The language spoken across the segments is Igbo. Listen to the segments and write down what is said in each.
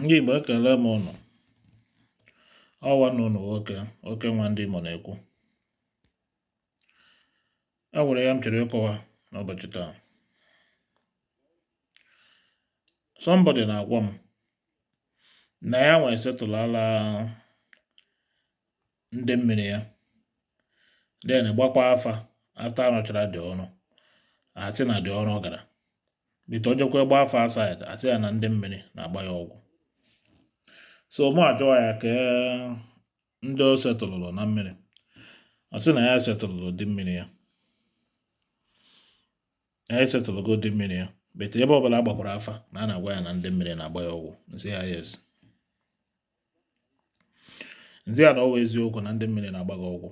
ndị Igbo ekele m ụnụ ọwa na ụnụ nwoke oke nwa ndị Imo na-ekwu e nwere ya m chere ịkọwa n'ụbọchị taa somebody na-agwa m na ya nwee setụlala ndị mmiri ya den gbakwa afa afta anọchara dị ọnụ asị na dị ọrụ gara bite ojekwa gba afa asaid asị ya na ndị mmiri na-agba ya ọgwụ so mụ ajụọ ya ka e, ndị o setụlụlụ na mmiri ọ sị na ya setụlụlụ dị mmiri ya ya esetụlụgo dị mmiri ya bete ebe ọbụla agbakwara afa na a na-agwa ya na ndị mmiri na-agba ya ọgwụ nsị ya yes ndị a na ọwa eziokwu na ndị mmiri na-agba gị ọgwụ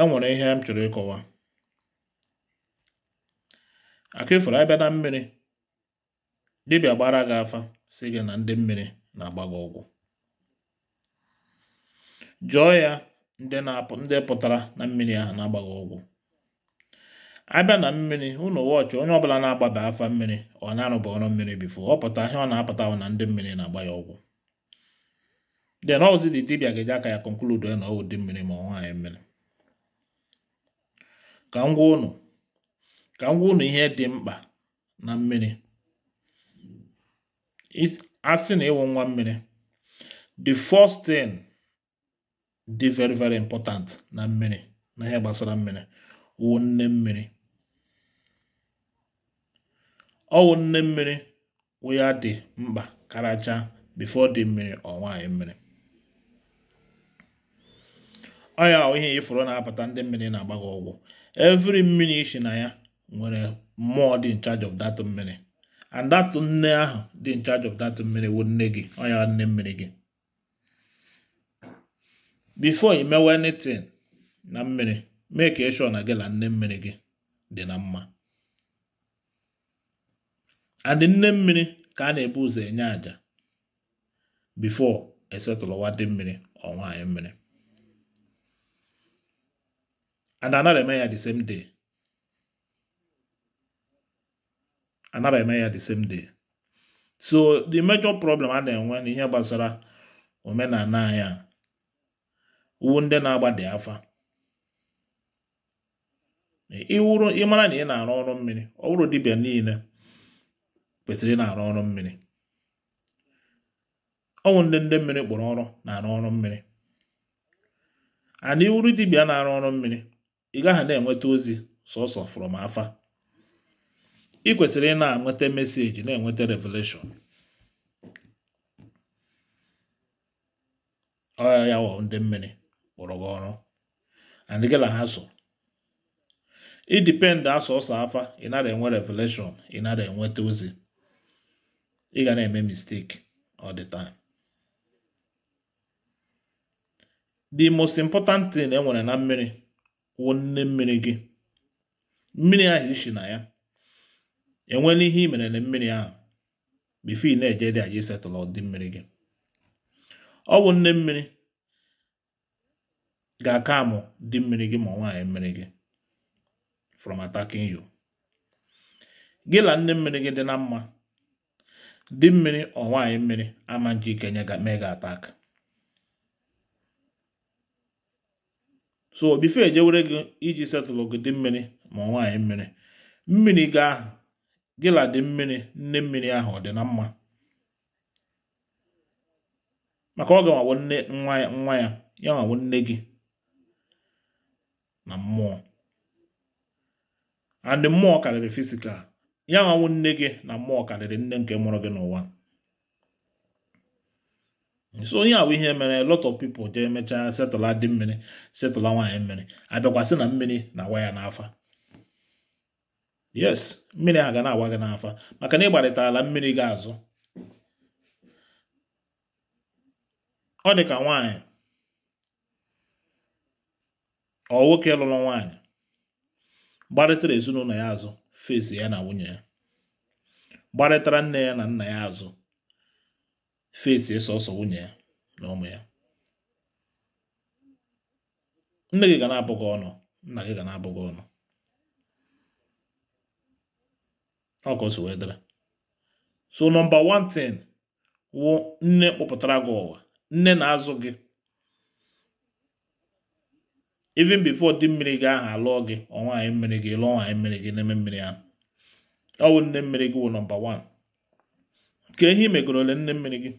e nwere ihe m chọrọ ịkọwa akụ ifuru abịa na mmiri dibịa gbara gị afa sị gị na ndị mmiri na-agba gị ụgwọ jụọ ya ndị pụtara na mmiri ahụ na-agba gị ụgwọ abịa na mmiri ụlọ wọchị onye ọbụla na agbaba afa mmiri ọ na-arụba ọrụ mmiri bifo ọ pụta ihe ọ na-apụta na ndị mmiri na-agba ya ọgwụ. de na ọzi dị dibịa ga-eji aka ya konkludu na ọwụ dị mmiri ma ọ anyị mmiri ka m gwa ụnụ ka m gwa ụnụ ihe dị mkpa na mmiri asị na ịwụ nwa mmiri the first thing dị very very important na mmiri na ihe gbasara mmiri wụ nne mmiri ọwụ nne mmiri wụ ya dị mkpa karacha before dị mmiri ọ nwaanyị mmiri ọ ya ihe ifuru na-apụta ndị mmiri na-agba ọgwụ every mmiri isi na ya nwere mmụọ dị in charge of that mmiri and that nne ahụ dị in charge of that mmiri wụ nne gị ọnya nne mmiri gị before i mewe anything na mmiri mee ka eshọ na gị na nne mmiri gị dị na mma and nne mmiri ka a na-ebu ụzọ enye àjà before esetụlụwa dị mmiri ọ nwaanyị mmiri and anara eme ya the same day anara eme ya the same day so the major problem a na-enwe na ihe gbasara omenala anyị a uwu ndị na di afa iwuru ịmara na ị na-arụ ọrụ mmiri ọ bụrụ dibịa niile kwesịrị ị na-arụ ọrụ mmiri ọnwụ ndị ndị mmiri kpọrọ ọrụ na-arụ ọrụ mmiri ana iwuru dibịa na-arụ ọrụ mmiri ị gaghị na-enweta ozi sọsọ from afa ị kwesịrị ị na-enweta meseji na-enweta revelation ọya ya wọ ndị mmiri gburugburu gị ọrụ andịgịla ha so ịdipend asọ ọsọ afa ị nara enwe revelation ị nara enweta ozi ị ga na-eme mistake ọ the time the most important thing enwere na mmiri wụ nne mmiri gị mmiri ahụ ishi na ya enwe ihe i mere na mmiri ahụ bifi na-eje dị aji isetụlụ dị mmiri gị ọ bụ nne mmiri ga-aka amụ dị mmiri gị ma nwaanyị mmiri gị from attacking you gị la nne mmiri gị dị na mma dị mmiri ọ nwaanyị mmiri ama nji ike ga mee gị atak so bife ejewere gị iji setụlụ gị dị mmiri ma nwaanyị mmiri mmiri gị ahụ gịla dị mmiri nne mmiri ahụ ọ dị na mma maka ọ ga-anwawo nne nwa ya nwa ya ya nwawo nne gị na mmụọ and mmụọ karịrị fisikal ya nwawo nne gị na mmụọ karịrị nne nke mụrụ gị n'ụwa so onye ahụ ihe mere lot of people jee emechaa setụla dị mmiri setụla nwaanyị mmiri abịakwasị na mmiri na awa ya n'afa yes mmiri a ga na-agwa gị n'afa maka na ịgbarịta ala mmiri gị azụ ọ dị ka nwaanyị ọ nwoke lụrụ nwaanyị gbarịtara ezinụlọ ya azụ fesi ya na nwunye ya gbarịtara nne ya na nna ya azụ fesi sọsọ nwunye ya na ụmụ ya nne gị ga na abụghị ọnụ nna gị ga na-abụ gị ọnụ ọkọ so so nọmba 1 tin wụ nne kpọpụtara gị ụwa nne na-azụ gị even before di mmiri gị aha alụọ gị anyị mmiri gị lụọ nwaanyị mmiri gị n'eme mmiri ahụ ọ wụ nne mmiri gị wụ nọmba 1 ka ihe megoro ole nne mmiri gị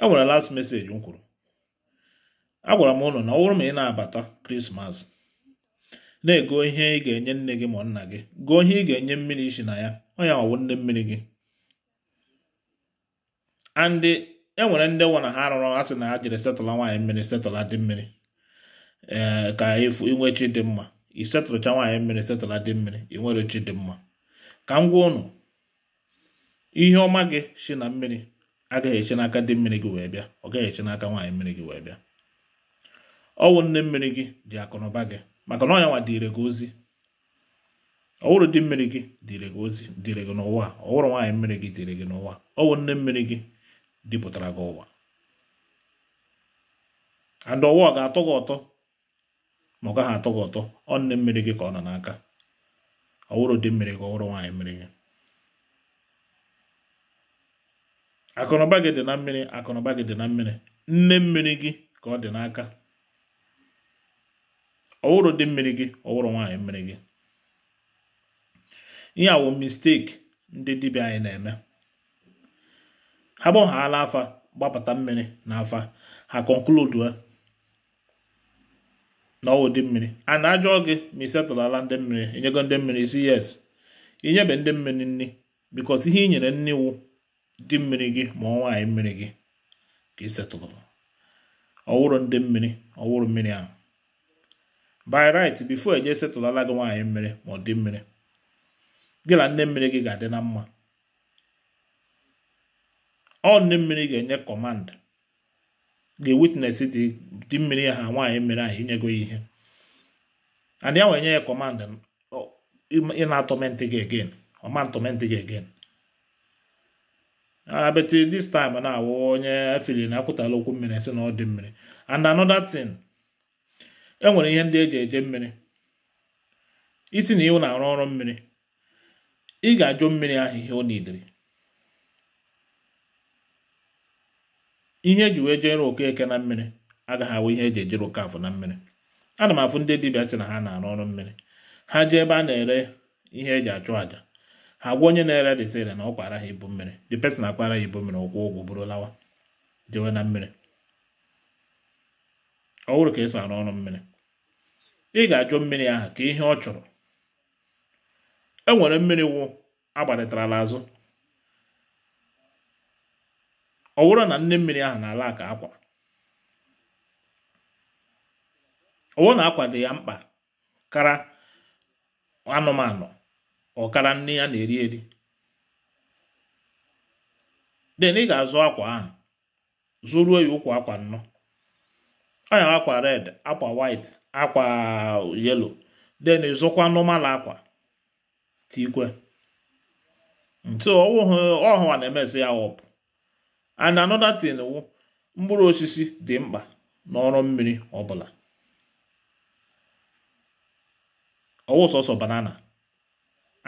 e nwere last message m kwuru agwara m ụlọ na ọ bụrụ ma ị na-abata krismas na-ego ihe ị ga-enye nne gị ma nna gị gụọ ihe ị ga-enye mmiri isi na ya ọ ya ọwụ nne mmiri gị andị enwere ndị nwa na ha rụrụ arụrụ asị na ha jiri setụla nwaanyị mmiri setụla dị mmiri ee eh, ka efu inwe chi dị mma ị setụlụcha nwaanyị mmiri setụla dị mmiri ị chi dị mma ka m gwa ụnụ ihe ọma gị si na mmiri agaghị eche n'aka dị mmiri gị wee bịa ọ gaghị eche n'aka nwaanyị mmiri gị wee bịa ọnwụ nne mmiri gị ji akụnụba gị maka na ọ nwa dịre gị ozi ọwụrụ dị mmiri gị dịre gị ozi dịre gị n'ụwa ọwụrụ nwaanyị mmiri gị dịre gị n'ụwa ọwụ nne mmiri gị dịpụtara gị ụwa and ụwa ọ ga-atọ gị ụtọ ma ọ gaghị atọ gị ụtọ ọ nne mmiri gị ka ọ nọ n'aka ọwụrụ dị mmiri gị ọwụrụ nwaanyị mmiri gị akụnụba gị dị na mmiri akụnụba gị dị na mmiri nne mmiri gị ka ọ dị n'aka ọwụrụ dị mmiri gị ọwụrụ nwaanyị mmiri gị ihe awụ misteki ndị dibịa anyị na-eme ha gbọghaala afa gbapụta mmiri eh, na afa ha konkludue na ọwụ dị mmiri a na-ajụọ gị ma ị setụlala ndị mmiri inyego ndị mmiri isi yes ị nyebe ndị mmiri nri bikos ihe ị nyere nni iwu dị mmiri gị ma ọ nwaanyị mmiri gị ka ị setụlụrụ ọwụrụ ndị mmiri ọwụrụ mmiri ahụ by right before eje setụlala gị nwaanyị mmiri ma ọ dị mmiri gị na nne mmiri gị ga-adị na mma ọ nne mmiri ga-enye kọmand ga-ewitnes dị mmiri ha nwaanyị mmiri ahụ inyego ya ihe and ya wee nye ya kọmand ị na-atọmentị gị again ọma ntọmentị gị again abetụ ah, this time na-awụ onye afili na akwụtala okwu mmiri si na ọ dị mmiri and another thing e nwere ihe ndị eji eje mmiri isi na iwu na-arụ ọrụ mmiri ị ga-ajụ mmiri ahụ ihe ọ nidiri ihe eji wee jere okeke na mmiri agaghị awụ ihe eji ejere okafọ na mmiri ana m afụ ndị dibịa sị na ha na-arụ ọrụ mmiri ha jee ebe a na-ere ihe eji achụ aja ha gwa onye na-ere resịrị na ọ kwara ha ibu mmiri the person akpara ya ibu mmiri ọkwụ ụgwọ bụrụ lawa jewe na mmiri ọ ka esi arụ ọrụ mmiri ị ga-ajụ mmiri ahụ ka ihe ọ chọrọ e nwere mmiri wụ agbalitarala azụ ọ na nne mmiri ahụ na-ala ka akwa ọwụ na akwa dị ya mkpa kara anụmanụ ọkara nne ya na-eri eri den ị ga-azụ akwa ahụ zụruo ya ụkwụ akwa nnọọ anya akwa red akwa white akwa yellow then ịzụkwa normal akwa tikwe ntu ọhụwa na-emezi ya wọpụ and another thing wụ mkpụrụ osisi dị mkpa n'ọrụ mmiri ọbụla ọwụ sọsọ banana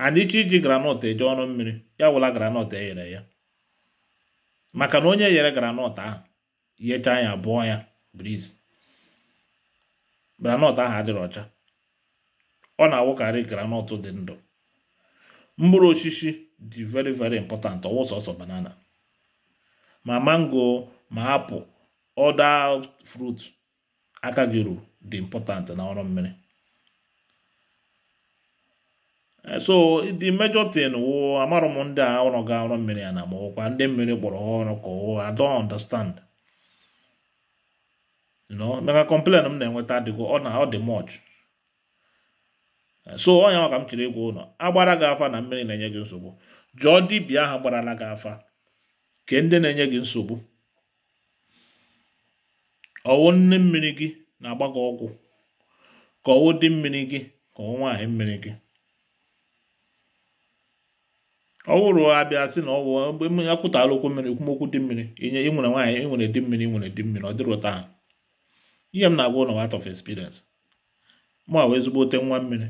and chi iji granọt eje ọrụ mmiri ya wụla granọt e ghere ya maka na onye yere granọt ahụ yechaa ya bụọ ya briz granọt ahụ adịrị ọcha ọ na-awụkarị granọt dị ndụ mkpụrụ osisi dị very very important ọwụ sọsọ banana ma mango ma apụ ọda frut aka gị ruru dị important na ọrụ mmiri eh, so the major thing wụ amarọ m ndị a ọrụ ga ọrụ mmiri ya na ma ụkwa ndị mmiri kpọrọ ọrụ ka ọ I understand maka kọmplen m na-enweta adịgo ọ na ọ dị mọch so ọnya ọ ka m chiri ịgwa ụlọ agbara gị afa na mmiri na-enye gị nsogbu jụọ dibịa ahụ gbarala gị afa ke ndị na-enye gị nsogbu ọwụ nne mmiri gị na-agba gị ọgwụ ka ọwụ dị mmiri gị ka ọwụ nwaanyị mmiri gị ọwụrụ abịa sị na ọwụ mgbe okwu mmiri ekwumokwu dị mmiri inye ịnwere nwere nwaanyị ị di mmiri ịnwere nwere di mmiri ọ dịrị ụta ahụ ihe m na-agwa ụlọ out of experience mụ wee ezigbo ote nwa mmiri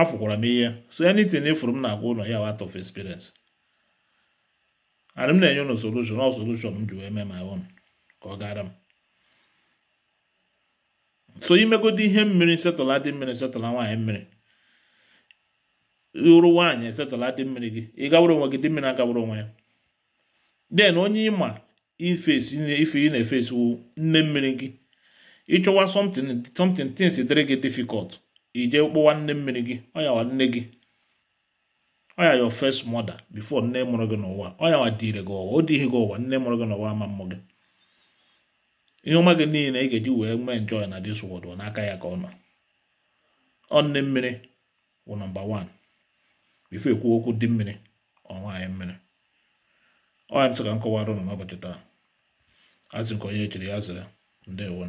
afụkwara m ihe so anything ifuru e m na-agwa ụlọ ya out of experience ana m na-enye ụlọ solution ọ solution m ji wee mee my own ka ọ gara m so imegodu ihe mmiri setụla dị mmiri setụla nwaanyị mmiri ịrụ nwaanyị setọla dị mmiri gị ị onwe gị dị mmiri agawara onwe ya den onye ịma ifesi ife ị na-efesi nne mmiri gị ịchọwa something something things dịrị gị difficult ije kpọwa nne mmiri gị ọyawa nne gị ọya your fes mother bifo nne mụrụ gị n'ụwa ọyawa dịrị gị ụwa ọ dịghị gị ụwa nne mụrụ gị n'ụwa ama mmụ gị ihe ọma gị niile ị ga-eji wee nwee enjoy na dis world n'aka ya ka ọ nọ ọ nne mmiri wụ nọmba 1 bifo ekwu okwu dị mmiri ọ nwaanyị mmiri ọ ya ntị ka m kọwara ụnụ n'ụbọchị taa azụ nke onye echiri ya zere ndewo